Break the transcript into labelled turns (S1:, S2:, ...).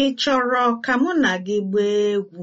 S1: Ị chọrọ ka mụ na gị gbaa egwu?